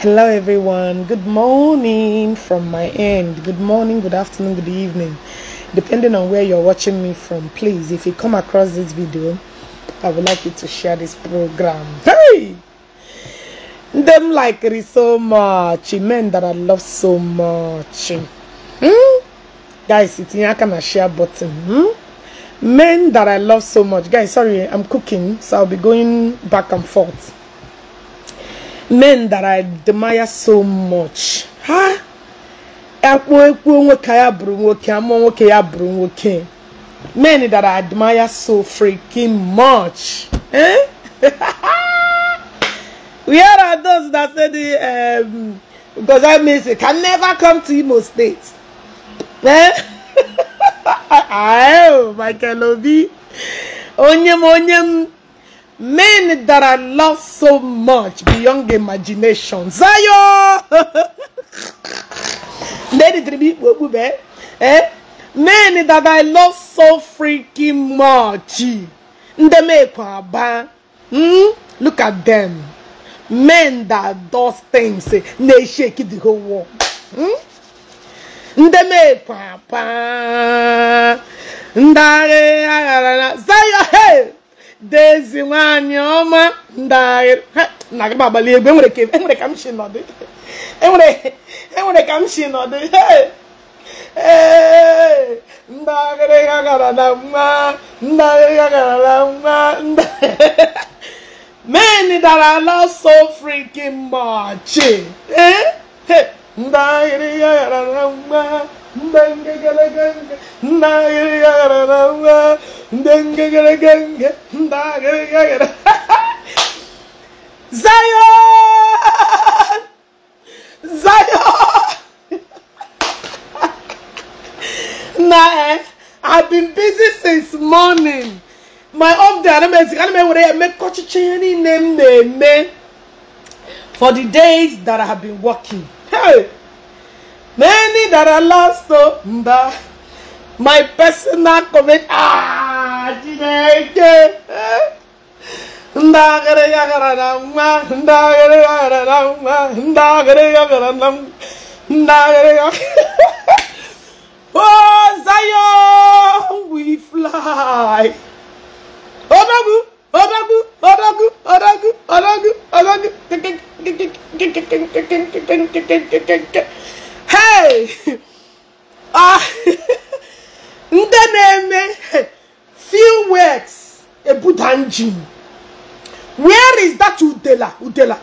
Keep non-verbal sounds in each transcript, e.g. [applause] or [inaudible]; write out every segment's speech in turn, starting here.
Hello, everyone. Good morning from my end. Good morning, good afternoon, good evening. Depending on where you're watching me from, please, if you come across this video, I would like you to share this program. Hey! Them like it so much. Men that I love so much. Hmm? Guys, it's in a share button. Hmm? Men that I love so much. Guys, sorry, I'm cooking, so I'll be going back and forth men that I admire so much ha akpọ ekwu nwoke ya bụrụ nwoke amụọ nwoke ya men that I admire so freaking much eh? [laughs] where are those that said, um, because I miss it can never come to Imo State eh? oh Michael Obi onye m onye m men that I love so much beyond imagination. Zayo! [laughs] Eh? eh? Men that I love so freaking much. Hmm. Look at them. Men that does things, eh? they shake the whole world. Hmm. Ndeme papa. Ndare agarana. Ah, Zayo, hey! dezi nwanyị ọma ndagharị na-agaba abalị egwu enwere ka m si nọdụ enwere ka m si nọdụ ee ndagharị ha gara na mma ndagharị ha gara na mma men dara ala so freaking much eh, ndagharị ha gara na mma [laughs] Zion, Zion. [laughs] nah, eh? I've been busy since morning. My off day, I'm busy. I'm away. I make kochicheni name name for the days that I have been working. Hey. Many that are lost so My personal comment. Ah, Chineke. Ndagare yagara na mma. Ndagare yagara na mma. Ndagare yagara na mma. Ndagare yagara. Oh, Zion, we fly. Odagu, Odagu, Odagu, Odagu, Odagu, Odagu. hei ah! ndị na-eme few words ebuda engine where is that udela udela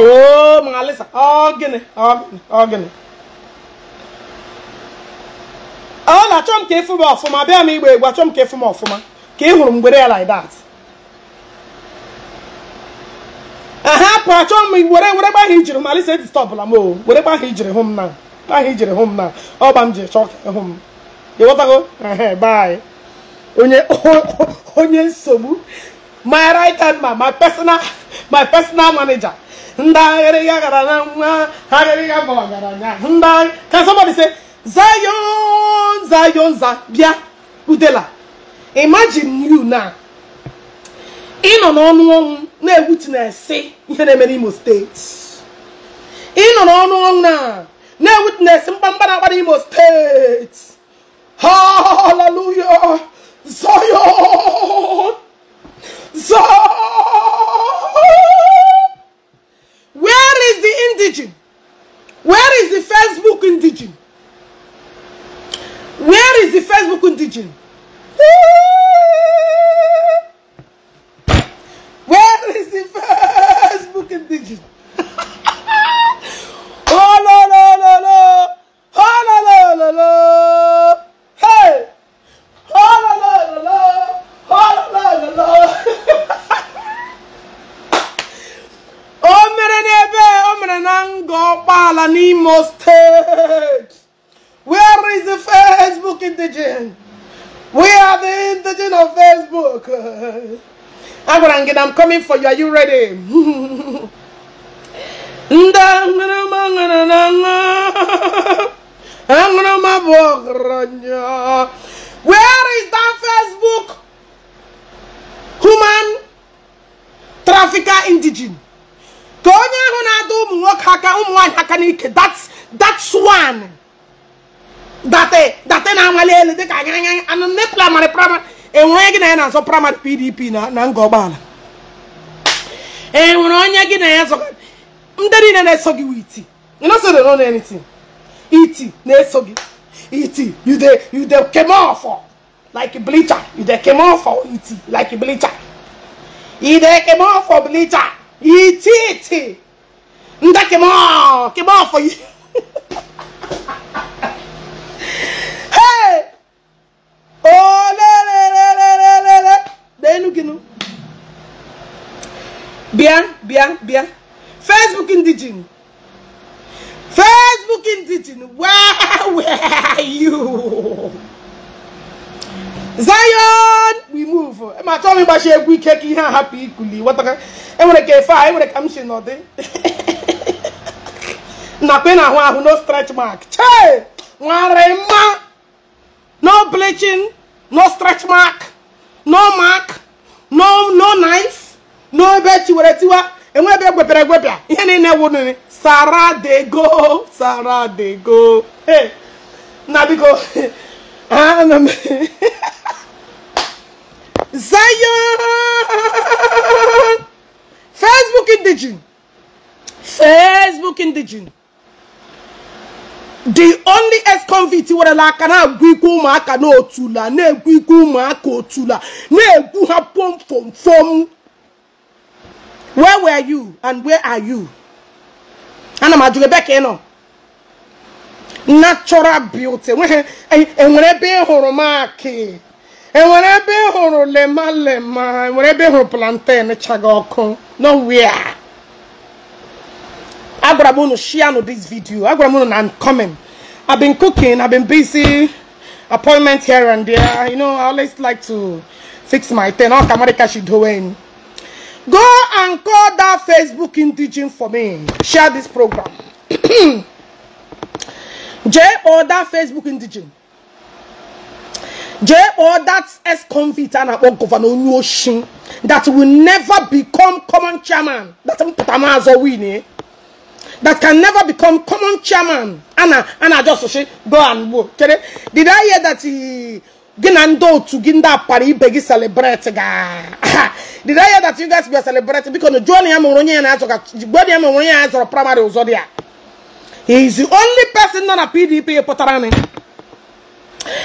oh ma alisa ọ oh, gịnị ọ oh, gịnị ọ oh, na-achọ m ka ịfụ m ọfụma bịa m igbe egwu achọ m ka ịfụ m ọfụma ka ị hụrụ mgbere ya like that na achọ m were were gba ijiri malisa eti stọpụla Whatever were gba ijiri hụ m na gba ijiri hụ m na ọba m ji chọọ ka hụ m ịghọtago bye onye [laughs] onye nsogbu my right hand man my personal my personal manager ndị aghịrịga gara na nwa aghịrịga gbawagara nya ndị ka somebody say zayon zayon za bịa udela imagine you now in on on ọnwụ na-egwuti na-esi ihe na-eme n'Imo steeti ịnọ on ọnwụ na na-egwuti na-esi mkpamkpa na-akpa n'Imo steeti haleluya Zion Zion where is the indigene where is the Facebook indigene where is the Facebook indigene Woo! is the first book in digital. [laughs] oh no no no no! Oh no no no no! Hey! Oh no no no no! Oh no no no no! [laughs] O mere n'ebe o mere na ngo ọkpala Where is the Facebook indigenous? We are the indigenous of Facebook. [laughs] I'm coming for you. Are you ready? [laughs] [laughs] Where is that Facebook human trafficker indigene? That's that's one That's that's enwere gị na ya na-asọpụrụ mmadụ pdp na nga ọgbaala enwere onye gị na ya ndị niile na don't gị anything. iti na so gị iti you dey you dey came off like a bleacher you dey came off iti like bleacher you dey came off bleacher iti iti ndị came off came off hey oh enu gịnụ bịa bịa bịa facebook ndị ji facebook ndị ji [laughs] where are you zion we move ma chọọ m ịgbachi egwu ike ka ihe a What the wetara enwere ka efe a enwere ka m si n'ọdị nakwa ị na-ahụ ahụ no stretch mark chee nwere mma no bleaching no stretch mark no mark no no knife no ebe chiwere tiwa enwe ebe egwepịara egwepịa ihe niile wụnere Sarah de go Sarah de go na biko ana m zion facebook indigene facebook indigene the only ex-convict werela aka na-egwu ikwu ụmụaka n'otula na-egwu ikwu ụmụaka otula na-egwu ha pomfomfom where were you and where are you ana m ajụ ebe ka ị nọ natural beauty enwere ebe ị hụrụ maki enwere ebe ị hụrụ lemalema enwere ebe ị plantain eh, chaga ọkụ oh, nowhere agwara share this video agwara I'm coming I've been cooking I've been busy appointment here and there you know I always like to fix my thing all Kamarika she doing go and call that Facebook in teaching for me share this program [clears throat] J or that Facebook in teaching J or that ex convict and about governor Onyoshin that will never become common chairman that's what I'm as that can never become common chairman. Anna, Anna just say, go and work. Did I hear that he eh, Ginando to Ginda Pari Begi celebrate? [laughs] Did I hear that you guys a celebrating because Johnny Amoronia and Azoka, Johnny Amoronia and Azoka, Primary Zodia? He is the only person not a PDP Potarani.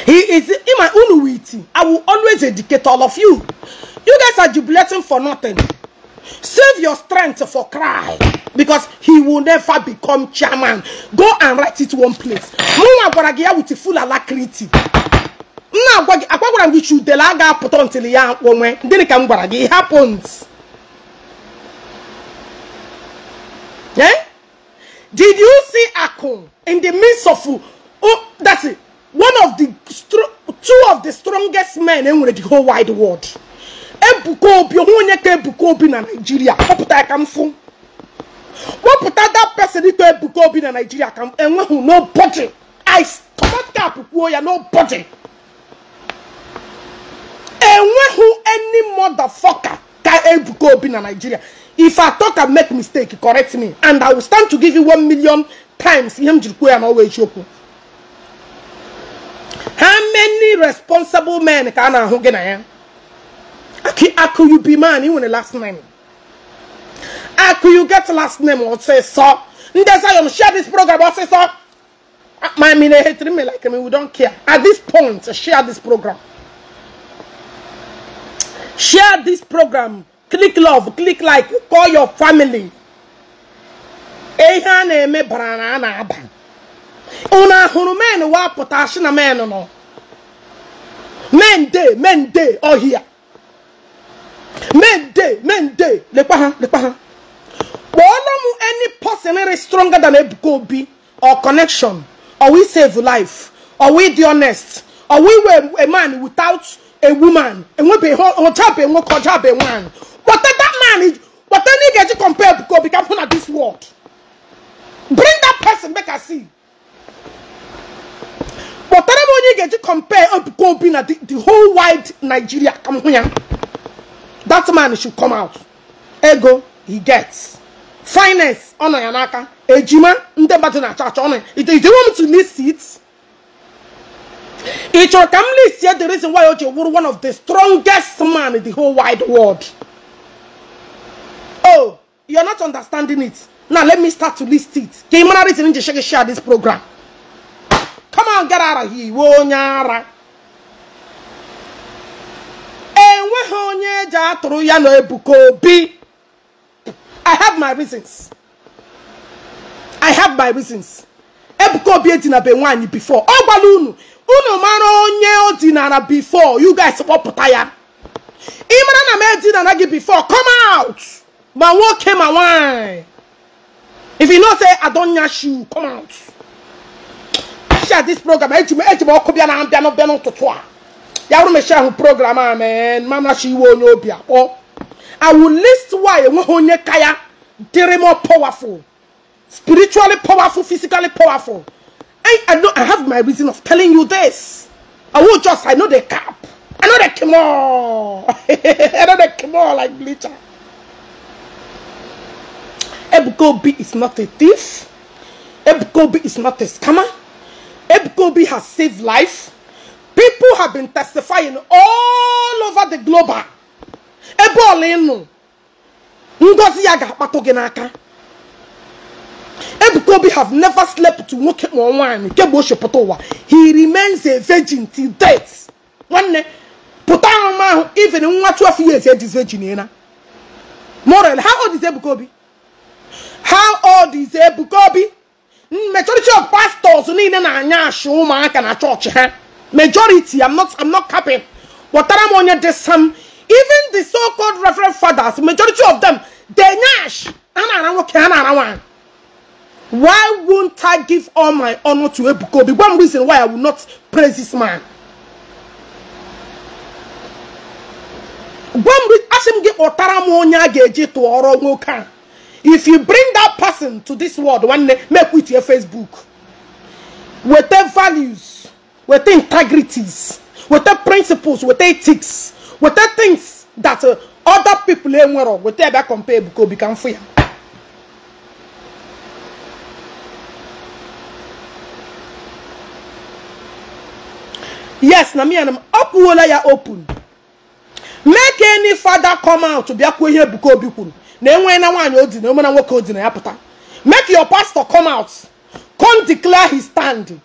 He is in my own witty. I will always educate all of you. You guys are jubilating for nothing. Save your strength for cry. Because he will never become chairman. Go and write it one place. Mụnwa gwara gị ya with full alacrity. Nna agwa gị agwa gwara m gị chudele a ga-apụta until ya onwe. Gịnị ka m gwara gị? It happens. Eh? Did you see Akon in the midst of oh, that's it, one of the two of the strongest men in the whole wide world? ebuka obi onwe onye ka ebuka obi na naijiria kpọpụta ya ka m fụ kpọpụta that person ka ebuka obi na naijiria ka m enweghị nobody i comot cap kwuo ya nobody enweghị any motherfucker ka ebuka obi na Nigeria, if i talk and make mistake correct me and i will stand to give you one million times ihe m jiri kwuo ya n'ọwa how many responsible men can I na in gị na Ki aku you be man, you want a last name. Aku you get last name or say so. Ndesayom share this program or say so. Ah, my mean they hate me like me, we don't care. At this point, share this program. Share this program. Click love, click like, call your family. Ihe a na-eme bara na a na-aba. men wa potashina na men nọ. Men day men dey, ọhịa. Mende, mende, lekwa ha, lekwa ha. Wolomu any person any stronger than a Obi or connection or we save life or we the honest or we were a man without a woman and we be on top and what one. What that man is what any get you compare Ebuko Obi can put at this world. Bring that person make I see. But that money get you compare Ebuko Obi na the, the whole wide Nigeria come here that man should come out ego he gets finance ọ yanaka. ejima ndị mmadụ church achọ If you want me to list it it chọrọ ka m list the reason why you were one of the strongest man in the whole wide world oh you're not understanding it now let me start to list it ka ị mara reason m share this program come on get out of here ya I have my reasons I have my reasons before unu unu onye before you guys ị mara na m gị before come out ma nwoke ma nwaanyị if you know say I don't nyash you come out share this program eji m eji m ọkụ bịa na ya bụrụ mechie ahụ program ah, a man mamachi iwe onye obi akpọ i will list why enweghị onye kaya. ya dịrị more powerful spiritually powerful physically powerful I, I know I have my reason of telling you this. I will just, I know the cap. I know the kimor. [laughs] I know the kimor like bleacher. Ebkobi is not a thief. Ebkobi is not a scammer. Ebkobi has saved life. People have been testifying all over the globe. Ebe ọla ngozi ya ga-akpatụ gị n'aka. have never slept to nwoke ma nwaanyị kemgbe o He remains a virgin till death. One pụta ahụmahụ even nwa two years eji virgin na. Morel, how old is Ebukobi? How old is Ebukobi? Majority of pastors ni na anya achu umuaka na church. ha majority i'm not i'm not capping i'm on your sam even the so called reverend fathers majority of them they Nash. a na-ara why won't i give all my honor to ebuka The one reason why i will not praise this man one if you bring that person to this world they make with your facebook their values with integrities, with principles, with ethics, with things that uh, other people in the world will ever compare because oh, become free. Yes, na me and up ya open. Make any father come out to be a here because obi Na enwe na nwanyi odi na na nwoke odi na Make your pastor come out. Come declare his stand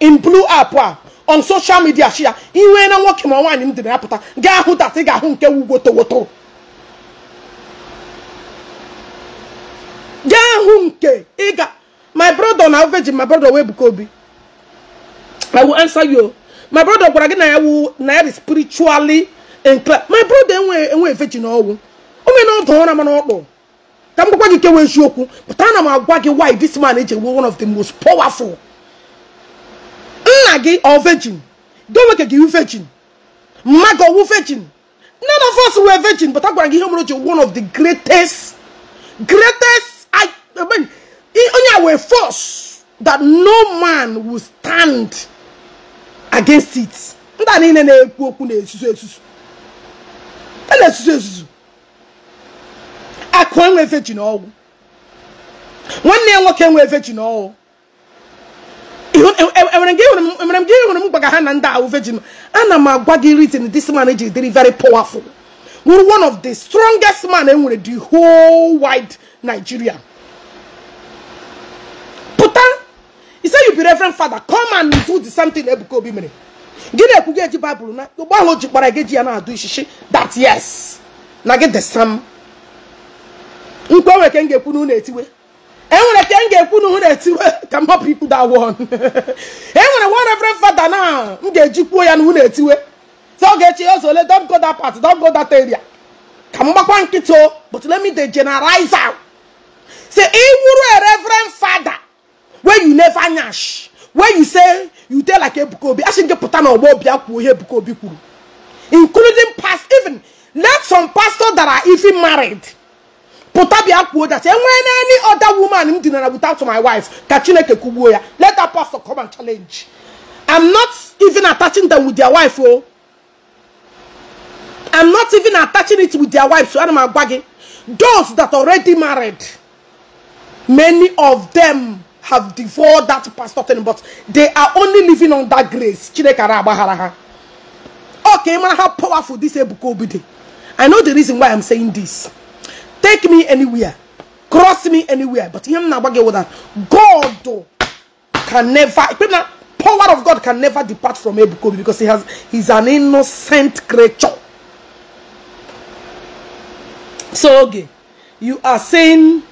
in blue apa. on social media shia iwe na nwoke ma nwaanyị m dị na-apụta gaa hụ dat ị ga-ahụ nke wugotowoto gaa hụ nke ị ga my brother na virgin my brother wee buka obi i will answer you my brother gwara gị na ya wu na ya spiritually inclined my brother enwe enwe veji na ọnwụ o mee na ọdụ ụra mana ọkpụ ka m gwakwa gị kewa eziokwu pụta ana m agwa gị why this man eji one of the most powerful nna gị ọ virgin domeke gị wu virgin mma gị ọwụ virgin none of us were virgin but I gị ihe mere oche one of the greatest greatest I, I mean, onye a wee force that no man will stand against it ndị a niile na-ekwu okwu na-esusu esusu a na-esusu esusu akụ enwe virgin ọwụ nwanne ya nwoke enwe enwere m gị enwere m gbaga ha na ndị ahụ vejin ana m agwa gị reason this man ji dịrị very powerful wụrụ one of the strongest man enwere the whole wide Nigeria pụta he say you be reverend father come and do the same thing Ebuka Obi mere gị na-ekwu gị eji baịbụl na ụgbọ ahụ ji kpara gị i ya na-adụ ishishi that yes na gị the same nkwe nwere ka m ga-ekwu na unu etiwe enwere ka m ga-ekwu na ụhụ na-etiwe ka m hapụ ikwu da won enwere one reverend fada na m ga-eji kwuo ya na ụhụ na-etiwe so ọ ga-eche ya ọzọ ole don go dat part don go area ka m gbakwa nkịtị but let me dey generalize out say ị a reverend fada wey you never nyash wey you say you dey like ebukobi Obi asị nke pụta na ọgbọ Obi akwuo ihe ebukobi kwuru including past even let some pastors that are even married pụta bịa kwuo that enwee when any other woman m dinara without my wife ka chineke kwugbuo ya let that pastor come and challenge i'm not even attaching them with their wife oh. i i'm not even attaching it with their wife so ana m agwa gị those that already married many of them have devoured that pastor thing but they are only living on that grace okay man, how powerful this ebuka obi dey i know the reason why i'm saying this take me anywhere cross me anywhere but him na gbagye that god can never power of god can never depart from ebukobi because he has he's an innocent creature so okay you are saying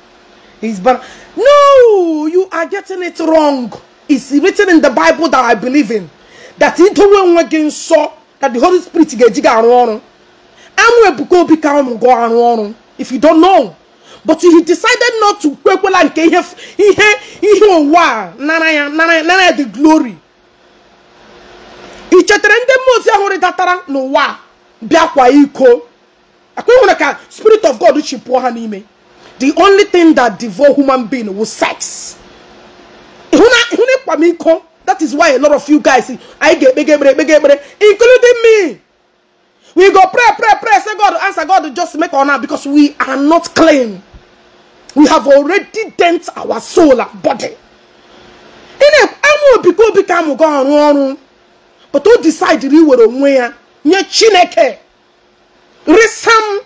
he's but no you are getting it wrong it's written in the bible that i believe in that into when we saw that the holy spirit ga ejiga arụ ọrụ amụ ebuka obi ka ụnụ go arụ ọrụ if you don't know but he decided not to kwekwela nke he ihe ihe ụwa nara ya nara ya the glory ị chetere ndị mmụọ ozi ahụ rịdatara n'ụwa bịakwa iko akwa nwere ka spirit of god chịpụọ ha n'ime the only thing that devour human being was sex ịhụ na ịkwa m iko that is why a lot of you guys anyị ga-ekpega ekpere ekpega ekpere including me we go pray pray pray say god answer god just make honor because we are not clean we have already dent our soul and body ị na-amụ obi ka obi ga ọrụ ọrụ but o decide iwere onwe ya nye chineke resam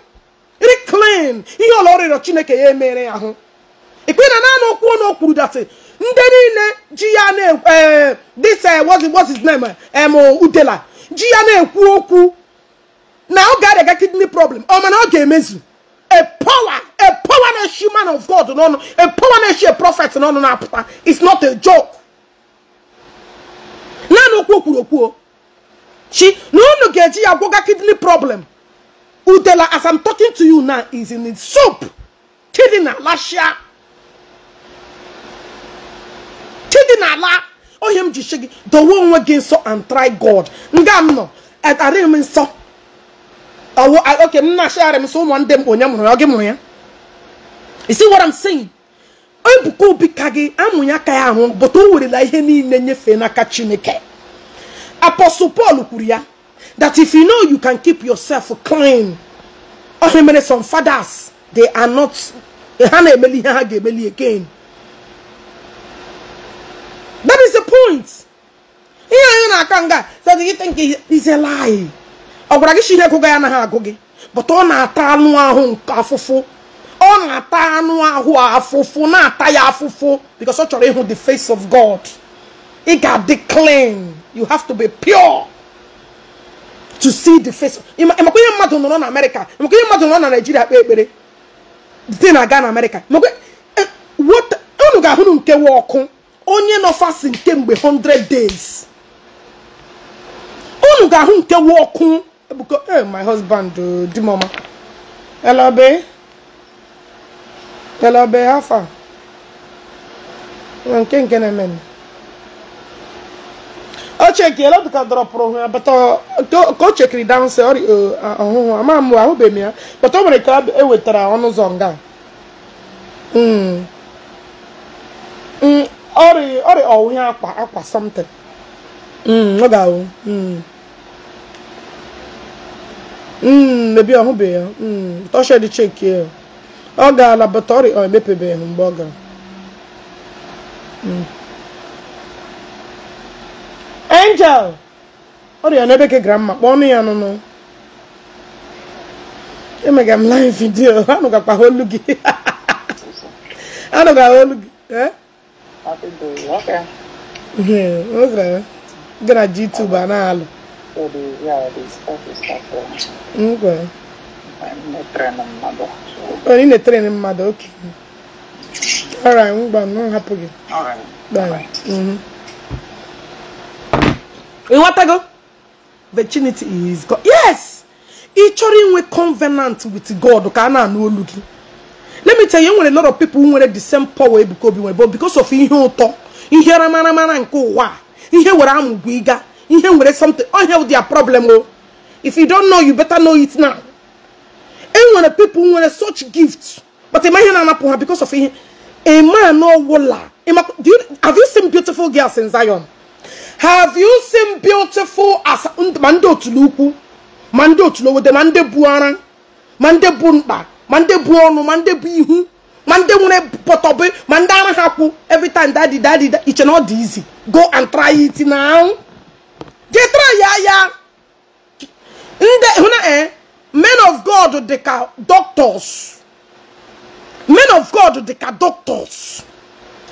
reclaim nye ọla ọrịrọ chineke ya emere ya ahụ ikpe na naanị okwu na o kwuru datị ndị niile ji ya na eh, this eh, what's his name em eh, udela ji ya na-ekwu okwu Now God ga ga-arịa kidney problem Oh man, ọ ga-emezu a power a power na-eshi of god no, no, a power na-eshi a prophet no, no, no. it's not a joke naanị no kwuru okwuo chi na unu ga-eji ya gwọga kidney problem udela as i'm talking to you now is in soup chidi na lashia chidi na ala ohe m ji The one dowe onwe gị and try god nga m nọ arịghị m nsọ you see what I'm saying? apostle paul kwuru that if you know you can keep yourself clean ọhịa mere some fathers they are not eh, ha na-emeli ihe ha ga-emeli again that is the point So do you think is a lie ọ gwara gị si ihe gụga ya anaghị agụ gị bụta ọ na-ata anụ ahụ um afụfụ ọ na-ata anụ ahụ afụfụ na-ata ya afụfụ because ọ chọrọ ịhụ the face of God ị ga-adị clean you have to be pure to see the face ịmakwa ihe mmadụ nọrọ na America ịmakwa ihe mmadụ nọrọ na Nigeria kpee ekpere dị na-aga na eh, unu ga ọkụ onye 100 days unu ga-ahụ ọkụ Ebuka, hey, eh, my husband, uh, Dimoma. Hello, babe. Hello, babe, how far? nke nke na-eme o chekiela dịka dọrọpụrụ hụ ya ka o chekiri dansị ọhụhụ ama m ahụbeghị m ya bata o nwere ka e wetara ọnụ ụzọ nga ọrịa ọwụhịa akwa akwa something ọ hmm, ga-ahụ Hmm, mebi ọhụbeghị ya hmm, ọshedị dị ya ọ gaala bata ọrịa ọ emepebeghị mgbe ọ gara hmm. angel ọ dị ọrịa n'ebe ka gramma kpọọ ọnụ ya nụnụ emega m live video anụgakwa olu gị anụga [laughs] olu gị e? gara [laughs] YouTube a na-alụ for the yeah, the stuff is stuff. Okay. Onye na-etere na mmadụ oke. Alright, ngwa m hapụ gị. Ịghọtago? Virginity is God. Yes! Ị chọrọ inwe covenant with God ka a na-anụ olu Let me tell you, when a lot of people who nwere the same power Ebuka Obi nwere but because of ihe ụtọ, ihe ramaramara nke ụwa, ihe were amụgwọ ịga. ihe nwere something ọ with their problem oh! if you don't know you better know it now Anyone of people who nwere such gifts but imagine ihe na-anapụ ha because of ihe a man no ọwụla have you seen beautiful girls in Zion have you seen beautiful as ma ndị otulukwu ma ndị otulowode ma mande bu mande ma mande bu mande ma ndị bu ọnụ ma ndị every time daddy daddy it's not easy go and try it now. Getra ya ya ndị hụ eh? men of god the cad doctors men of god the cad doctors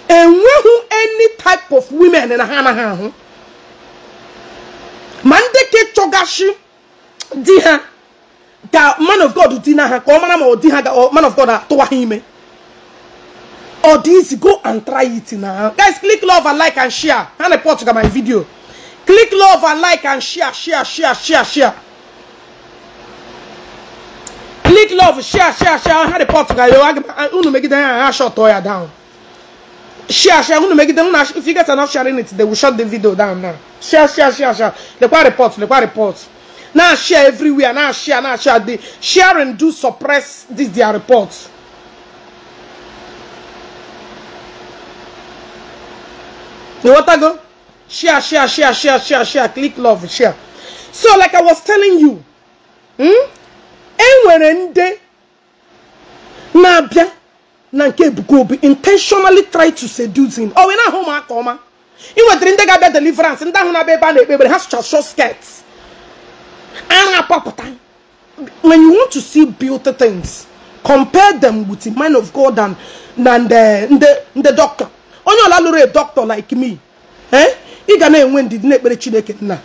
who any type of women in a anaghị Man deke chogashi diha, the man of god dị na ha manama ọ the ọ man of god atụwa toahime. All these go and try it now, guys click love and like and share And na-epọtụga my video Click love and like and share, share, share, share, share. Click love, share, share, share. I had a pot guy. go. I'm going to make it down. I shut Toya down. Share, share. I'm going to make it down. If you guys are not sharing it, they will shut the video down now. Share, share, share, share. The quite report, the quite report. Now share everywhere. Now share, now share. The share and do suppress this their reports. You want to go? Share, share, share, share, share, share. Click love, share. So, like I was telling you, hmm? enwere ndị na-abịa na nke ebuka intentionally try to seduce him ọ wee na home ụmụaka ọma ị nwetara ndị ga-abịa deliverance ndị ahụ na-abịa ebe a na-ekpe ekpere ha sụcha short skirt ara apapụta when you want to see beauty things compare them with the man of God and na the the doctor onye ọla lụrụ a doctor like me eh? ị na-enwe ndidi na-ekpere chineke nna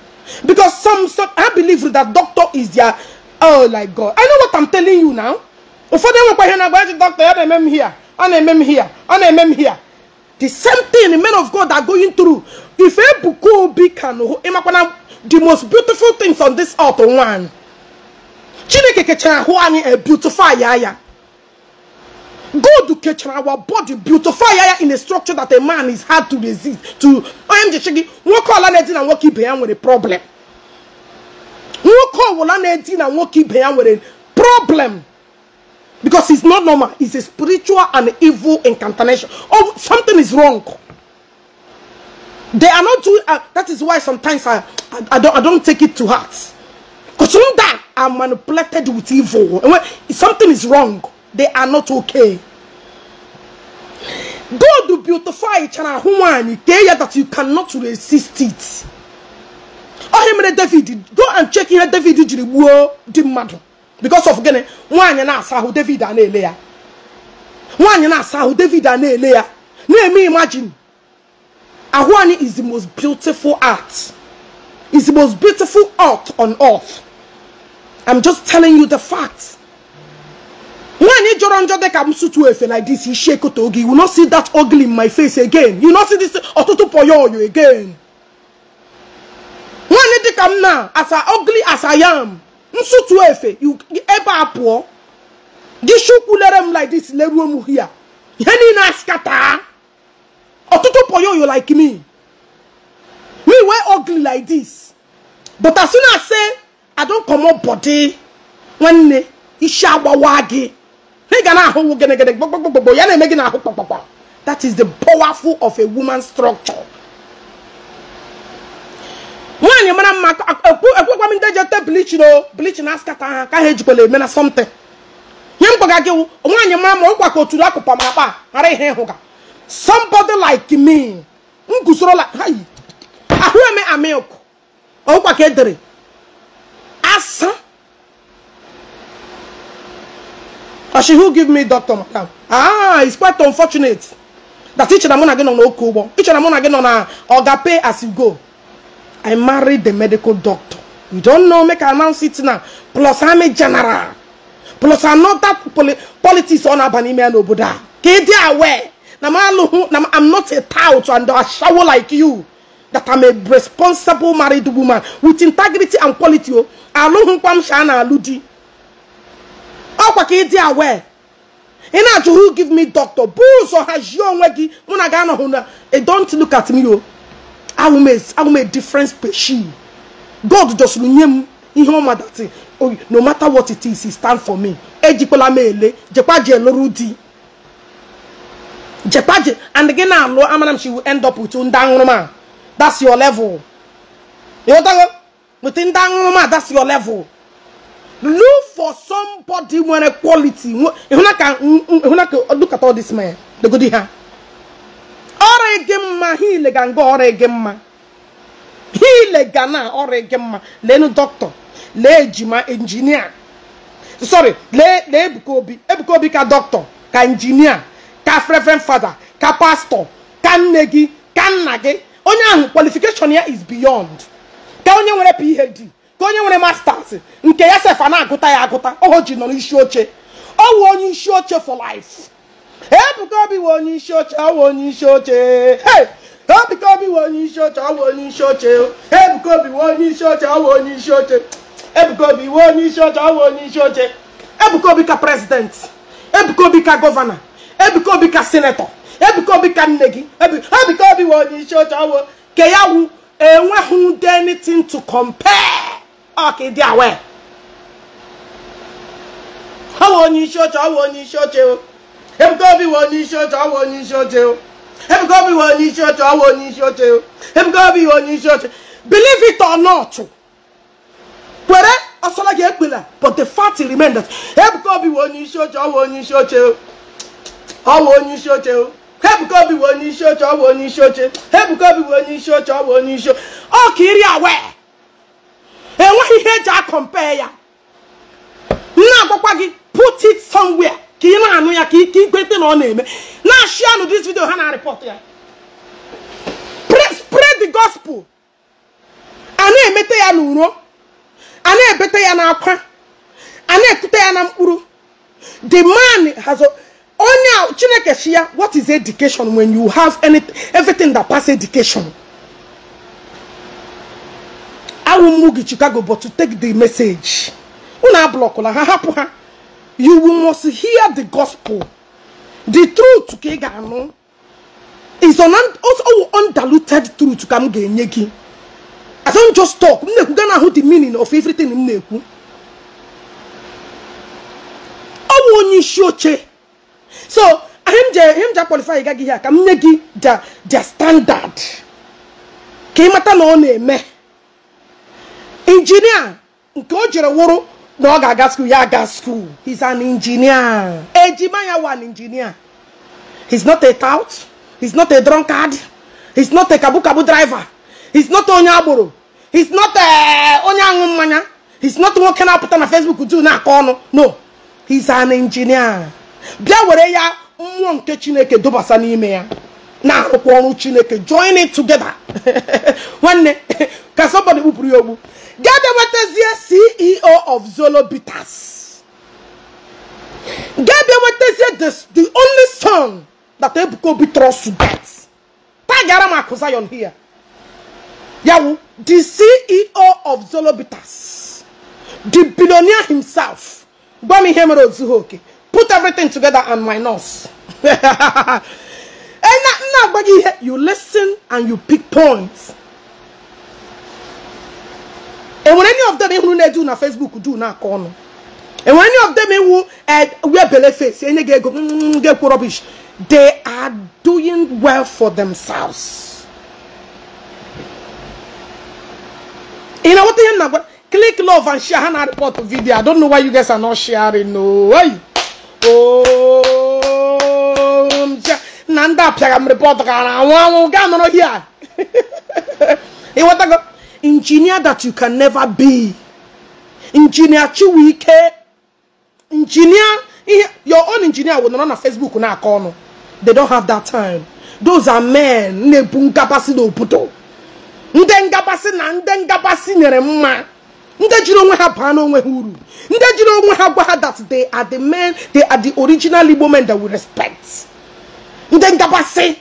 because some some i believe that doctor is their oh like god i know what i'm telling you now ụfọdụ enwekwa ihe na-agba eji doctor ya na-eme m here ọ na-eme m here ọ na-eme m here the same thing the men of god are going through if ebuka obi can ịmakwana the most beautiful things on this earth one chineke kechara ahụ anyị a beautify ya ya God to catch our body, beautify in a structure that a man is hard to resist. To I am the shaggy, walk all anything and walk keep with a problem. Walk all anything and walk keep with a problem. Because it's not normal, it's a spiritual and evil incantation. Oh, something is wrong. They are not doing uh, that is why sometimes I, I, I don't I don't take it to heart. Because some that I'm manipulated with evil. when something is wrong they are not okay. God beautify each chana human there that you cannot resist it. Oh him David, go and check here David the wo di matter because of getting one. nwaanyị na-asa ahụ David a na-ele ya. Nwaanyị David a na Let me imagine. Ahụ is the most beautiful art. Is the most beautiful art on earth. I'm just telling you the facts. When Ijoron Jode comes to Efe like this, he shake Otogi. You not see that ugly in my face again. You not see this Otutu you again. When it come now, as I ugly as I am, Msutu Efe, you ever poor. This shukulerem like this, Let lerum here. Yeni na skata. Otutu you like me. We were ugly like this. But as soon as I say, I don't come up body, when Isha Wawagi. na ị ga na-ahụwu gịnịgịnị gbogbogbogbo ya na-eme gị n'ahụ kpakpakpa that is the powerful of a woman structure nwaanyị mara mma ekwekwa m ndị jete bleachin o bleachin askata ha ka ha ejikwala eme na something nye m gwaga gị nwaanyị mara ma ụkwa ka oturu akpụkpa ma akpa ghara ihe ịhụga somebody like me m gusoro ahụ eme amilk ụkwa ka edere asa Or she who give me doctor, madam. Ah, it's quite unfortunate. That each and I'm gonna get on Okubo. Each and I'm gonna get on a Ogape as you go. I married the medical doctor. You don't know, make I announce it now. Plus I'm a general. Plus I'm not that poli politics on Abanime and Obuda. Get aware. I'm not a tout and a shower like you. That I'm a responsible married woman with integrity and quality. Aluhun oh. kwam shana aludi. kwa ka ịdị aware ị na-ajụ who give me doctor bụ ụzọ hazie onwe gị mụ na ga-anọghị na don't look at me o m a difference peshi god dosiri nye m ihe dati no matter what it is stand for me ejikwala m ele jekwa ji di jekwa ji and gị na-alụ amara m she will end up with ndị aṅụrụma that's your level ịghọtago with ndị aṅụrụma that's your level Look for somebody when a quality. Look at all this man. The good here. Oregemma, he legan go oregemma. He legana oregemma. Lenu doctor. Le jima engineer. Sorry, le le ebukobi. Ebukobi ka doctor, ka engineer, ka reverend father, ka pastor, ka negi, gị, ka nna gị. qualification here is beyond. Ka onye nwere PhD. ka onye nwere masters nke ya sefa na-agụta ya agụta oho ji nọ n'isi oche ọ wụ onye isi oche for life ebuka obi wụ onye isi oche ọ wụ onye isi oche ebuka obi wụ onye isi oche ọ wụ onye isi oche ebuka obi wụ onye isi oche ọ wụ onye isi oche ebuka obi wụ onye isi oche ọ wụ onye isi oche ebuka obi ka president ebuka obi ka gọvanọ ebuka obi ka senetọ ebuka obi ka nne gị ebuka obi wụ onye isi oche ọ wụ ke ya wụ enweghị anything to compare ọkìdí àwẹ̀ ọwọ́ ni iṣẹ́ ọ̀tọ̀ ọwọ́ ni iṣẹ́ ọ̀tẹ̀ o ebùkọ́ bí wọ́n ní iṣẹ́ ọ̀tọ̀ ọwọ́ ni iṣẹ́ ọ̀tẹ̀ o ebùkọ́ bí wọ́n ní iṣẹ́ ọ̀tọ̀ ọwọ́ ni iṣẹ́ ọ̀tẹ̀ o ebùkọ́ bí wọ́n ní iṣẹ́ ọ̀tẹ̀ believe it or not kwere ọsọlọ́gì ekpela but the fact remains that ebùkọ́ bí wọ́n ní iṣẹ́ ọ̀tẹ̀ ọwọ́ ni iṣẹ́ ọ̀tẹ̀ o ọwọ́ ni iṣẹ́ ọ̀tẹ̀ o ebùkọ́ bí wọ́n ní iṣẹ́ ọ̀tẹ̀ ọwọ́ ni iṣẹ́ ọ̀tẹ̀ ebùkọ́ bí wọ́n ní iṣẹ́ ọ̀tẹ̀ ọwọ́ ni iṣẹ́ ọ̀tẹ̀ ọ kì í rí enweghị ihe eji akọmpe ya nna agwakwa gị put it somewhere ka ị na-anụ ya ka ike ikwete na ọ na-eme na-ashị anụ dis video ha na-arịpọt ya spread the gospel a na-emete ya n'uro a na-ebete ya n'akwa a na-ekute ya na mkpụrụ the man has onye chineke shi ya what is education when you have anything everything that pass education won't Chicago, but to take the message. You must hear the gospel. The truth kegano is an also undiluted truth come genyeki. I don't just talk. I'm Mneku gana who the meaning of everything I Owo not isi oche. So, him je him je qualify gaga here. Kam nyegi just their standard. Ke mata na ọ Engineer, nke o jere wụrụ na ọ ga-aga skuul ya aga skuul he's an engineer ejima ya wan injinia he's not a tout he's not a drunkard he's not a kabukabu driver he's not onye agboro he's not eh, onye aṅụ mmanya he's not nwoke na-apụta na facebook du na-akọ ọnụ no he's an engineer bịa were ya mmụọ nke chineke dubasa n'ime ya na-arụkwa ọrụ chineke join it together [laughs] nwanne [laughs] ka somebody kpụpụrụ ya ogbu ga-abịawetazie CEO of Zolo Bitters ga-abịawetazie the only son that Ebuka Obi trusts to get tagara m here yawu the CEO of Zolo Bitters the billionaire himself Bami m ihe put everything together and minus nose. [laughs] agwa gị you listen and you pick points and when any of them ịhụrụ do na Facebook do na-akọ and when any of them who eh, wear bele face any get ego get rubbish they are doing well for themselves You know what they are Click love and share and report the video. I don't know why you guys are not sharing. No way. Oh, Nanda, I'm reporting. I want to go here. [laughs] You want to go? engineer that you can never be engineer chiwike engineer your own engineer will not on facebook na corner they don't have that time those are men na-ebu ngabasị na obodo na ndị ngabasị nyere mma ndị jiri onwe ha baa n'onwe ha that they are the men they are the original igbo men that we respect ndị ngabasị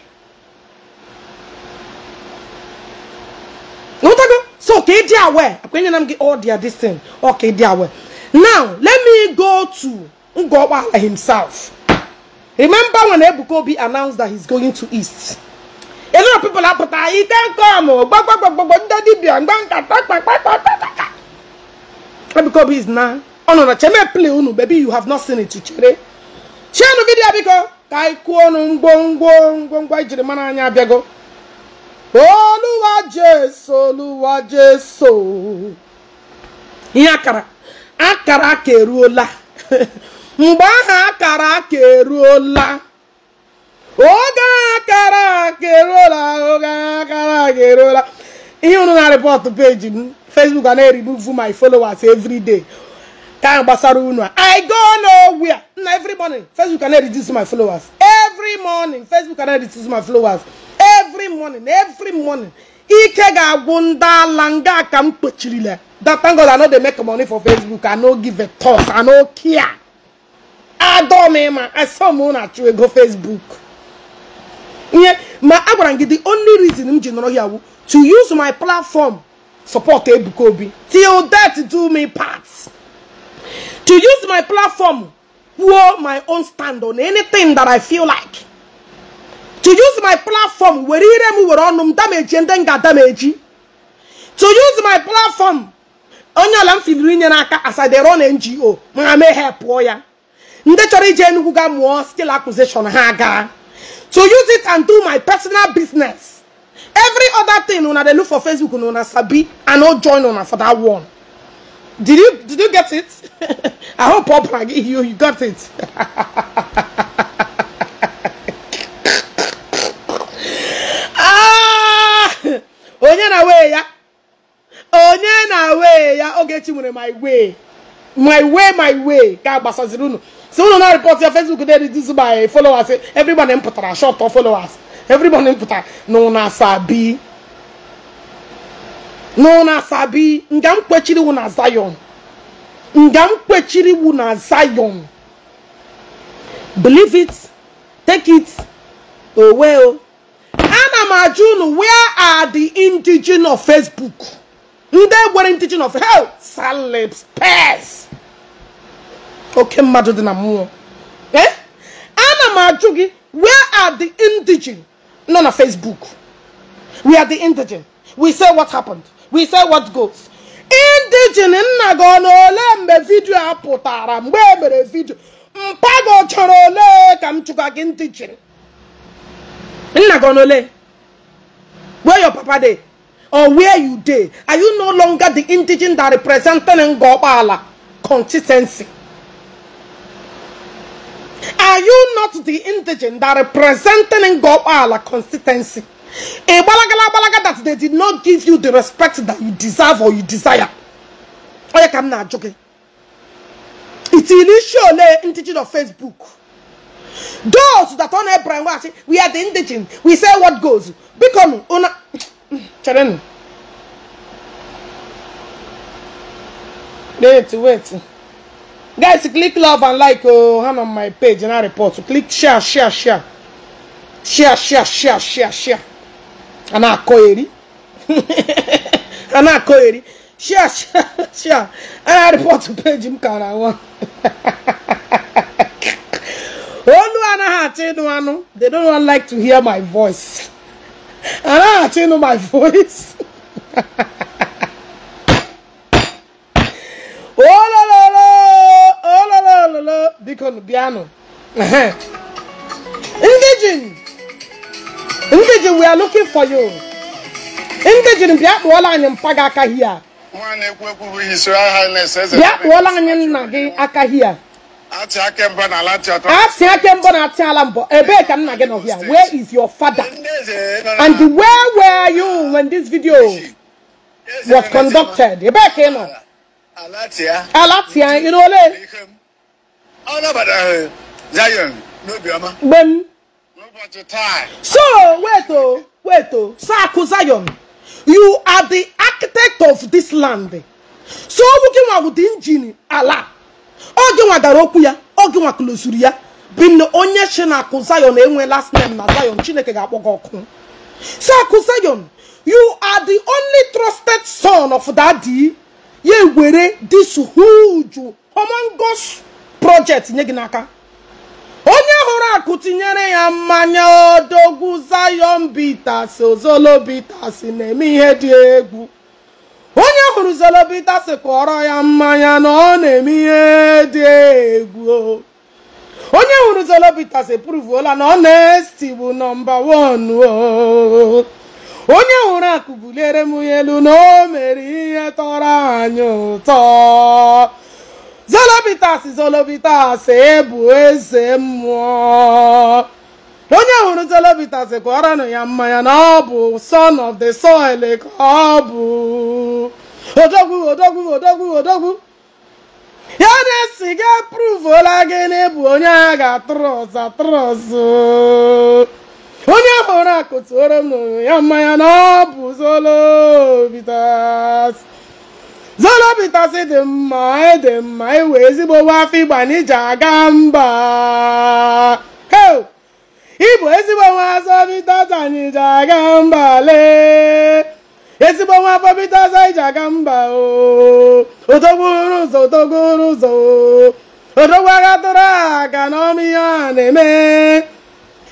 Notago. So okay, dear way. When I'm get all their this thing. Okay, dear way. Now let me go to Ngowa himself. Remember when Ebukobi announced that he's going to East? A lot of people are but I ah, can't come. Oh, Ebukobi is now. Oh no, no, cheme play unu, baby. You have not seen it, chere. Share the video because kai kuonu ngongo ngongo ijiri mana anya abiago olúwa jésù olúwa jésù ihe akara akara aka eruola mgbe aha akara aka eruola oge akara aka eruola oge akara aka eruola ihe unu na rịpọtụ peji m facebook a na-eribuvu my followers every day ka gbasara unu a i go nowhere na every morning facebook a na-eriduce my followers every morning facebook a na-eriduce my followers morning every morning ike ga-agwụ ndị ala nga ka m that thank I know they make money for Facebook I know give a toss I know care don't, mean I saw na-achụ at you go Facebook. Yeah, my gị the only reason I'm here ya to use my platform support Ebuka Obi till that do me part to use my platform kwuo my own stand on anything that I feel like to use my platform where ire m were ọnụ m dameji to use my platform onye ala m filiri inye na ngo ma me ha pụọ ya ndị chọrọ ije ga skill acquisition to use it and do my personal business every other thing una dey look for Facebook una sabi i no join una for that one did you did you get it [laughs] i hope pop you you got it [laughs] onye na wee ya onye na wee ya Ogechi nwere my way my way my way ka gbasaziri unu si unu na report ya Facebook dey reduce by followers everybody m pụtara short of followers everybody m pụtara na una sabi na una sabi nga m kwechiri wu na Zion nga m kwechiri wu na Zion believe it take it owe o Amajun, where are the indigenous of Facebook? They were indigenous of hell. Salibs, pass. Okay, then I'm more. Eh? Anna m where are the indigenous? None of Facebook. We are the indigenous. We say what happened. We say what goes. Indigenous nna gị ọ video ole mgbe vidiyo a pụtara mgbe e mere vidiyo. Mpa gị ọ chọrọ ole ka m chụga gị indigenous? Nna gị ọ na ole? where your papa de, or where you de? are you no longer the indigent that representing ngopala consistency are you not the indigent that representing ngopala consistency a balagala balaga that they did not give you the respect that you deserve or you desire Oya kam na ajoke it is initially indigent of facebook those that on Abraham watch, we are the indigent. We say what goes. Become una. Children. Wait, wait. Guys, click love and like oh, hand on my page and I report. So click share, share, share. Share, share, share, share, share. And I call And I it. Share, share, share. And I report to page him, can I want they don't like to hear my voice. Ana Achenu my [laughs] voice. oh la la la, oh la la la la, Deacon Biano. [laughs] Indigen, Indigen, we are looking for you. Indigen, Biakwala and Pagaka here. Bịa kpụọla anyị nna gị aka hia where is your father? And where were you when this video was conducted? Ebee ka ị nọ? Alati ya. Alati ya, So wait oh, wait oh, Saku Zion, you are the architect of this land. So we can bụ the engine Allah. oge nwa gara okwu ya oge nwa klozuru ya bin onye chi na akụ zion enwe last name na zion chineke ga-akpọ gị ọkụ si akụ zion you are the only trusted son of daddy ya were this huge humongous project nye gị n'aka onye hụrụ akụ tinyere ya mmanya odogwu zion bitas ozolo bitas na-eme ihe dị egwu onye hụrụ zelobita sịkpọrọ ya mmanya na ọ na-eme ihe dị egwu onye hụrụ zelobita si na ọ na-esi bụ nọmba wanu o onye hụrụ akụ buliere m ya elu na o mere ihe tọrọ anyị ụtọ zolobitas zolobitas e bụ eze mmụọ onye hụrụ Celebita sị kụọranụ ya mmanya na ọ bụ son of the soil ka ọ bụ odogwu odogwu odogwu odogwu ya na esi ga pruvuola gị na ebu onye agha ga-atụrụ ọza onye hụrụ akụtuoro m ya mmanya na ọ bụ Celebita Celebita dị mma ịdị e mma iwe e ezigbo afọ ịgba n'ije aga mba Igbo ezigbo nwa asọ bita tanyị ije aga mba lee ezigbo nwa afọ bita asọ ije aga mba o odogwuru ụzọ odogwuru ụzọ odogwu agha tụrụ aka n'ọma ihe a na-eme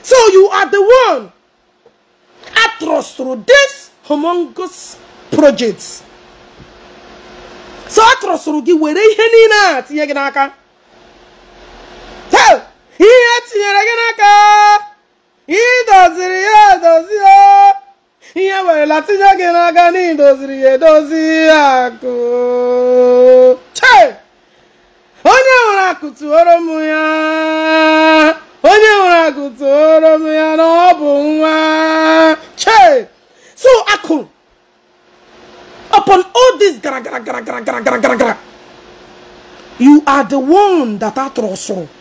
so you are the one atrus through this humongous project so atrọsụrụ gị were ihe niile a tinye gị n'aka ihe e tinyere gị n'aka idoziri ya edozi o ihe werela tinye gị n'aka na idoziri ya edozi akụ che onye nwere akụ tụoro m ya onye nwere akụ tụoro m ya na ọ bụ nwa che so akụ upon all this gara gara gara gara gara gara gara you are the one that atụrụ sụrụ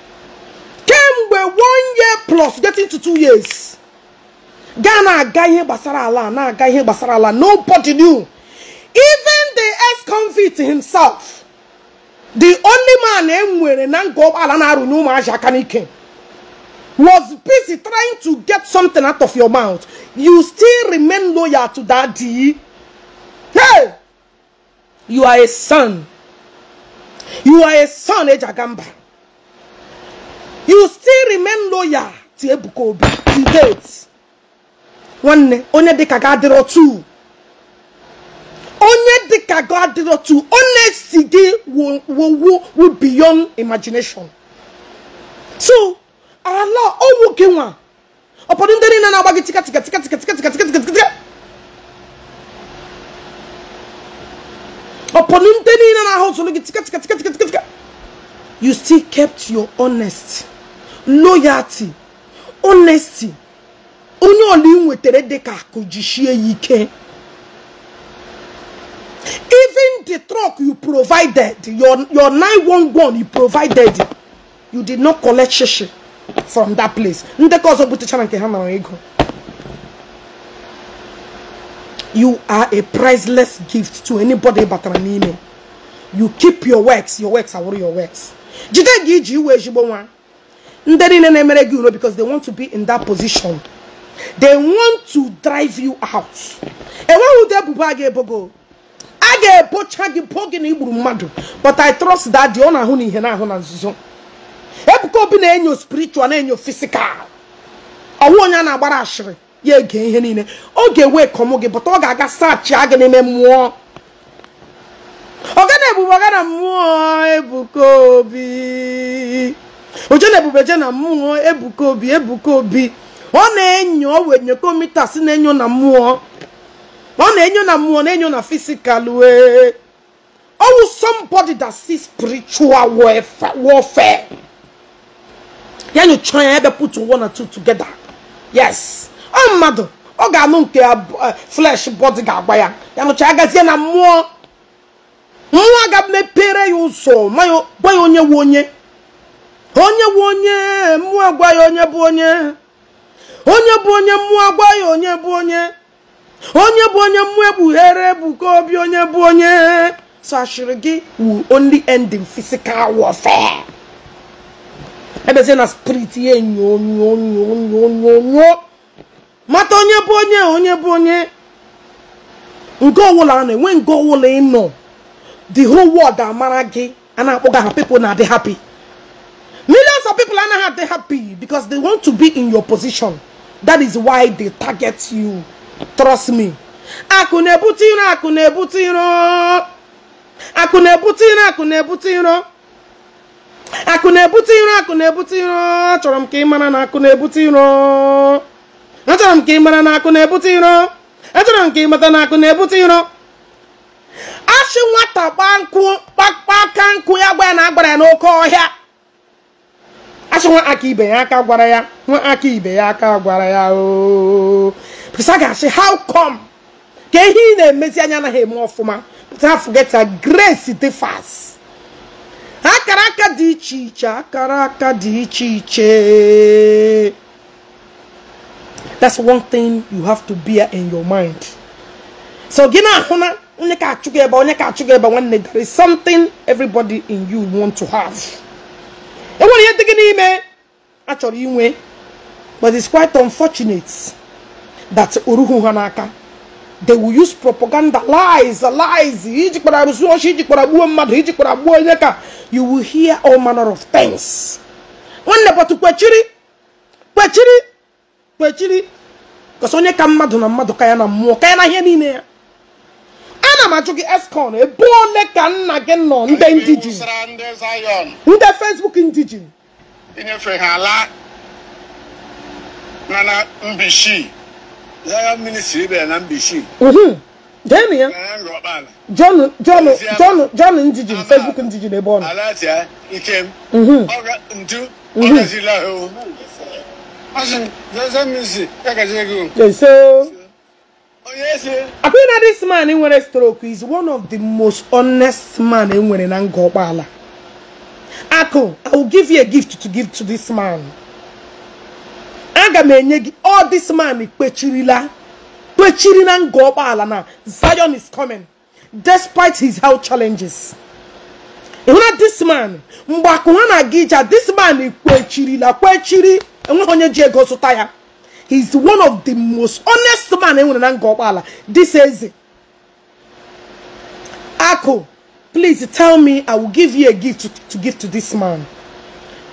plus getting to two years Ghana, guy here basara gbasara ala na-aga ihe gbasara ala nobody knew even the ex-convict himself the only man enwere na nga ụgbọala na-arụnye ụmụazị was busy trying to get something out of your mouth you still remain loyal to Daddy. hey you are a son you are a son ejagamba you still remain loyal to Ebuka Obi to date One, onye dịka ga adịrọ tu onye dịka ga adịrọ tu honesty gị wowo wo beyond imagination so Allah, ọnwụ gị nwa Upon ndị na tika tika tika tika tika tika tika tika tika na tika tika tika tika tika you still kept your honest loyalty honesty onye ọla ị nwetara dịka akụ jichie ike even the truck you provided your your 911 you provided you did not collect shishi from that place ndekọ ọzọ butechara nke ha nara ego you are a priceless gift to anybody batara n'ime you keep your works your works awụrụ your works jide gị iji iwe ezigbo ndị niile na-emere gị uro because they want to be in that position they want to drive you out enweghị ụdị ebubo a ga-ebogo a ga-ebocha gị bo gị but i trust that the owner ọ na-ahụ na ihe na-ahụ na nzuzo ebuka na-enyo spiritual na-enyo physical Awo onye na-agbara ashịrị ya ege ihe niile ọ ga-ewe kọmụ gị bụta ọ ga-aga sachia gị n'ime na ọgana ebubo ọgana mmụọ ebuka obi na ebube na mmụọ ebuka obi ebuka obi ọ na-enyo wenyekomitas na-enyo na mmụọ ọ na-enyo na mmụọ na-enyo na fisikal wee ọwụ somebody that see spiritual warfare ya nyocha ya ebe put one and two together yes ọ mmadụ ọ ga-anụ nke eh, flesh body ga-agba ya ya nụcha agazie na mmụọ mmụọ aga mepere ya ụzọ gwa ya onye wụ onye onye bụ onye mmụọ agwa ya onye bụ onye onye bụ onye mmụọ agwa ya onye bụ onye onye bụ onye mmụọ egbughere ebuka obi onye bụ onye so ashịrị gị wu only ending physical warfare ebezie na spirit ya enyo onyo onyo onyo onyo mata onye bụ onye onye bụ onye nke ọwụla na-enwe nke ọwụla ịnọ the whole world amara gị a na-akpọga ha people na-adị happy Millions of people are not happy because they want to be in your position. That is why they target you. Trust me. Akunebutiro, akunebutiro. Akunebutiro, akunebutiro. Akunebutiro, akunebutiro. Achọrọ m ka ị mara na akunebutiro. Achọrọ m ka ị mara na akunebutiro. Achọrọ m ka ị mata na akunebutiro. Achị nwata kpa nkụ kpakpa aka nkụ ya gwa ya na agbara ya n'oke ọhịa asị ibe ya gwara ya ibe ya gwara ya ga how come na na-emezi anya ọfụma grace fast dị dị that's one thing you have to bear in your mind so gi there is something everybody in you want to have enwere eh? but it's quite unfortunate that oruhu Hanaka they will use propaganda lies lies you will hear all manner of things nwanne bọtụ kwechiri kwechiri kwechiri kọsọ onye ka mmadụ na mmadụ ka na mmụọ ka na ihe ana m ajụ gị eskon ebe ole ka nna gị nọ ndị ndị ji ndị fesbuk ndị ji inyefe ha ala na na mbishi Zion ministry bịara na mbishi deni ya john john john john ndiji facebook ndiji n'ebe ọ nọ alatia ikem ntu ọgazila ahụ ọsị Zion ministry ya gazi Yeso na oh, this man nwere stroke is one of the most honest man in na nga ọkpala ako i will give you a gift to give to this man aga m enye all this man kpechirila kpechiri na nga ọkpala na zion is coming despite his health challenges ịhụna this man mgbe akụ na this man kpechirila kpechiri enweghị onye ji ego he's one of the most honest man enwere na nga ọkpala this eze Ako please tell me I will give you a gift to, to give to this man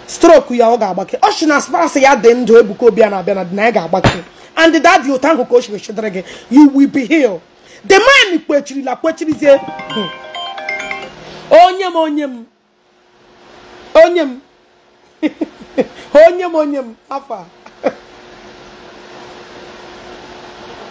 stroke ya ọ ga-agbake ọ shi na spouse ya dị ndụ Ebuka Obi na and that youth ahụ ka o shiri you will be here. the man kwechirila kwechirizie onye m hmm. onye m onye m onye [laughs] m onye afa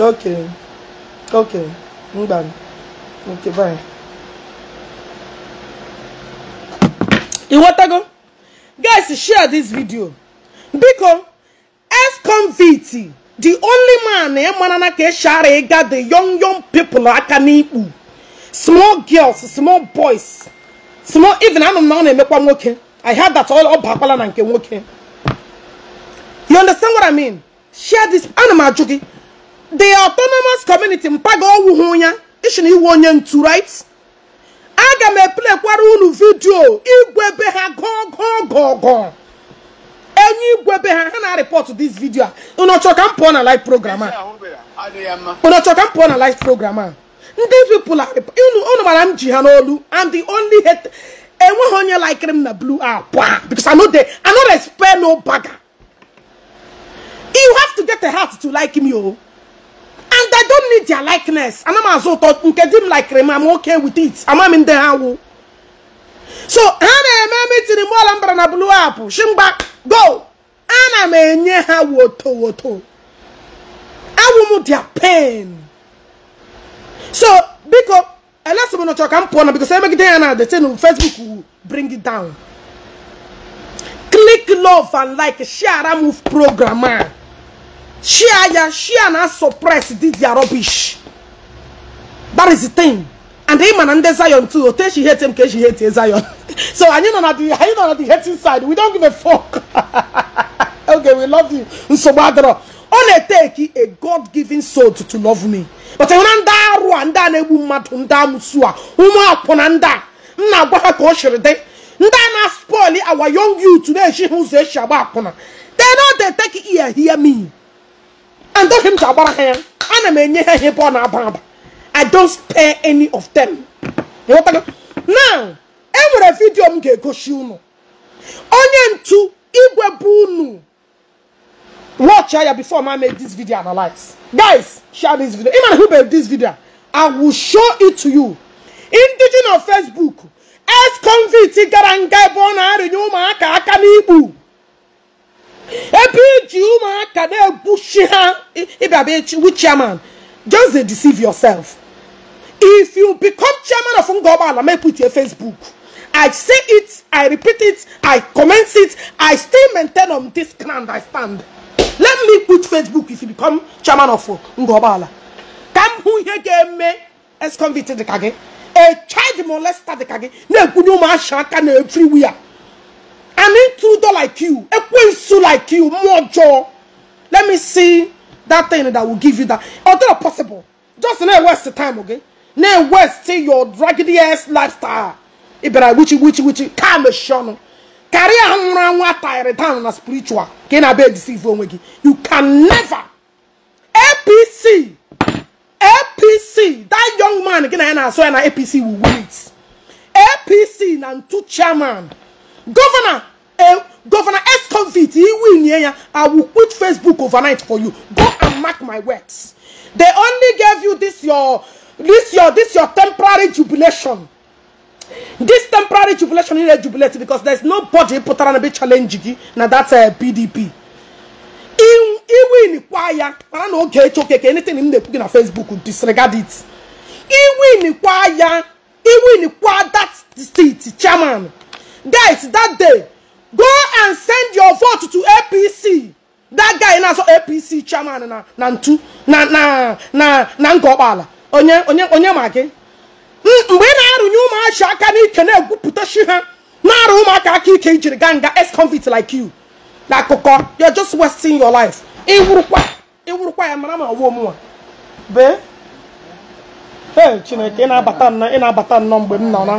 okay okay done. okay fine go? guys share this video biko f convict the only man e eh, manana ka share eh, ga the young young people eh, aka n'ikpu small girls small boys small even anụ na ọ na-emekwa nwoke i heard that all up bakwala na nke nwoke you understand what i mean share this animal m the autonomous community mpaga owuhu ya ishi na iwu onye ntu right aga m eplekwara unu vidio igwe be ha gogogogo enyi igwe be ha ha na report this video a ụnọchọ ka na live programmer. a ụnọchọ ka na live programmer. These people are unu mara m ji ha n'olu and the only hate enweghị honya like him na blue akwa because I no dey I no spare no bagger you have to get a heart to like him o oh and i don't need their likeness ana m azụ ụtọ nke di m likere m am okay with it I'm in ha wu so ha na-eme mitiri m ọla mbara na blue apple. shimgba go ana m enye ha woto woto awụ m their pain so biko elesi m nọchọ ka m pụọ because biko so emegide ya na the thing facebook will bring it down click love and like share move programmer. She and she and suppress this their rubbish. That is the thing. And the man and the Zion too. Tell she hates him because she hates Zion. [laughs] so are you not at the are you not the hating side? We don't give a fuck. [laughs] okay, we love you. Nsobadro. Only take a God-given soul to, to love me. But I want that Rwanda and Ebu Matunda Musua. Uma Ponanda. Mna Gwaka Koshirde. Ndana spoil our young youth today. She who a Shabakona. They know they take ear, hear me and told him to agbara ha ya ana m enye ha ihe ebe i don't spare any of them now enwere vidio m ga-egosi unu onye ntu igwe bụ unu watch here before I make this video analyze guys share this video ịmana who made this video i will show it to you indigenous facebook ex-convict gara nga ebe ọ na-arịnye ụmụaka ebe iji ụmụaka na-egbuchi ha ịbịaba wu chairman just dey deceive yourself if you become chairman of Ungoba, ngọgbala make put your facebook i say it i repeat it i commence it i still maintain on this ground i stand let me put facebook if you become chairman of ngọgbala ka m hụ ihe ga-eme ex-convict dịka gị a child molester dịka gị na-ekwunye ụmụaka aka na everywhere an intruder like you, a quinsu like you, more jaw. Let me see that thing that will give you that. Although possible, just not waste the time, okay? Now waste your raggedy ass lifestyle. Ibera witchy, witchy, time calm shun. Carry a I down on a spiritual. Can I be deceive You can never APC APC that young man again I saw an APC will win it. APC and two chairman Governor, uh, Governor S. Convict, he will I will quit Facebook overnight for you. Go and mark my words. They only gave you this your this your this your temporary jubilation. This temporary jubilation is a jubilation because there's nobody put on a bit challenge now that's a PDP. Iwin kwaya, I don't know okay, okay, anything in the book a Facebook disregard it. Iwin kwaya, Iwin kwa that's the state chairman. guys that day go and send your vote to apc that guy na apc chairman na na ntu na na na na ngọkpala onye onye onye ma gị mgbe ị na-arụnye ụmụachi aka n'ike na-egwupụta shi ha na-arụ ụmụaka aka ike ijiri ganga nga ex-convict like you na akụkọ you're just wasting your life iwurukwa iwurukwa ya mara ma ọwụọ mụnwa bee ee chineke ị na-abata nnọọ ị na-abata nnọọ mgbe m nọ na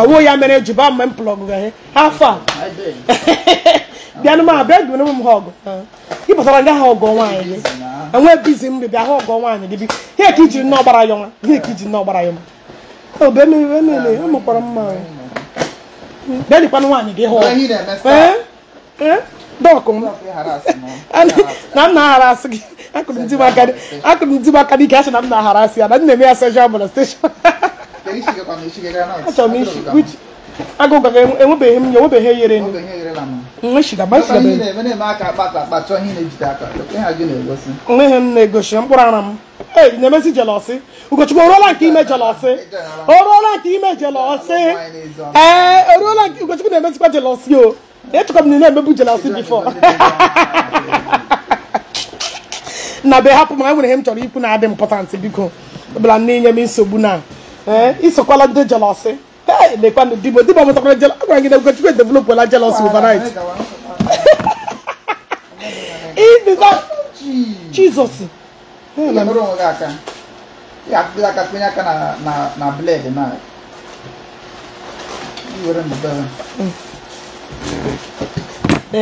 awuo ya mere eji ba mgbe m plọgụ ghe afọ a [laughs] bịanụ m abịa gụrụ m ha ọgụ ị pụtara nga ha ọgụ nwaanyị gị enwe bizi mgbe bịa ha ọgụ nwaanyị gị bi ihe ka ijiri nnọọ gbara ya ọnwa ihe ka ijiri nnọọ gbara ya ọnwa obe mmiri niile ụmụkwara mma bịa dịkwanụ nwaanyị gị hụ dọkụ m [laughs] na m na-aghara asị gị akụrụ ndị m aka n'ike asị na m na-aharasị ya na nna m ya soshal molestation achọrọ m isi enwebeghị m enwebeghị nweghị m na-egosi mkpụrụ ara m ee na-emezi jelọsị Ugochukwu oruola nke ime jelọsị oruola nke ime jelọsị ee oruola nke Ugochukwu na-emezikwa jelọsị o echekwa m na ị na-emebu jelọsị bifọ na be hapụ ma enwere ihe m chọrọ ikwu na-adị mpọtantị biko ọbụla nne nye m nsogbu na ee eh, isokwala ndị jelọsị lekwanụ eh, dibo dibo mụtakwara jelọ agwara gị na Ugochukwu edevelopụla jelọsị overnight Jizọs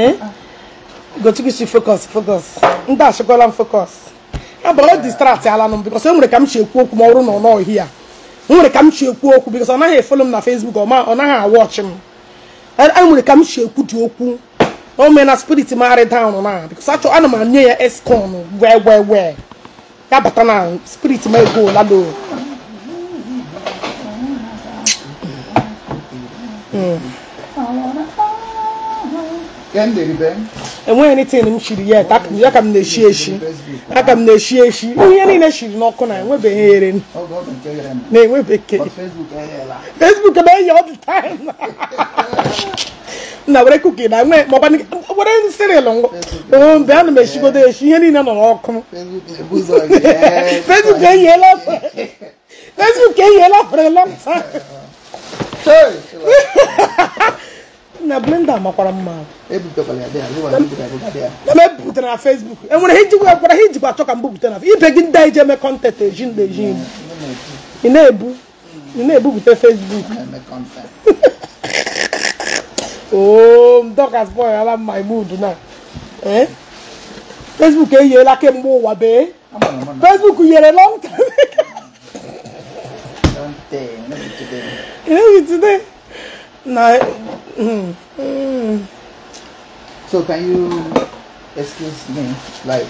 ee gochigchi focus focus ndị achịkwala m focus abụrụ ah, distract ala nụ m because enwere ka m chi ekwu okwu ma ọ bụrụ na ọ nọghị ya nwere ka m chi ekwu okwu because ọ naghị efolo m na Facebook ọ naghị awọchị m enwere ka m chi ekwu dị okwu o mee na spirit m arị down na because achọ ana m anye ya escon wee wee wee ya bata na spirit m ego lalo Mm. enweghị anything m shiri yet aka m na-eshi eshi aka m na-eshi eshi ihe niile shiri n'ọkụ na enwebeghị ere na enwebeke facebook eh, ebe enye eh, all the time na were kuki na nwee maọkwa were siril mgbe a na m eshigodo eshi ihe niile nọ n'ọkụ facebook eh, oh, eyiela facebook eyiela [laughs] [laughs] for a long time [laughs] na blender makwara mma na m ebuputere na facebook enwere ihe ijikwa gwara ihe ijikwa achọ ka m bupute na ibe gị ndị ije eme kọntent eji ndị eji mm. ị na-ebu ị na-ebupute facebook [laughs] ooo mdokas boy ala my mood na eh? facebook eyiela kemgbe ụwa bee facebook yere long time ị na-ebi today No. Mm, mm. so can you excuse me, like?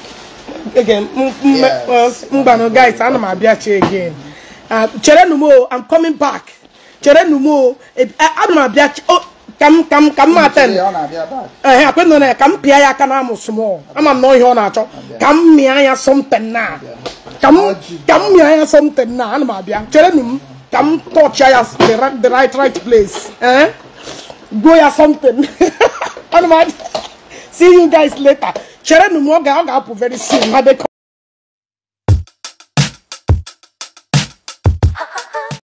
Again, yes, Mbano, guys, I'm abia again. Ah, chere numo, I'm coming back. Chere numo, I'm abia. Oh, come, come, come, Martin. Eh, I couldn't Come, Pia, I can am small. I'm annoyed on that. Come, me, I something now. Come, come, me, I something now. I'm abia. Chere numo. ka m touch ya the right right place eh go ya something [laughs] see you guys later chere m ọ ga-apụ very soon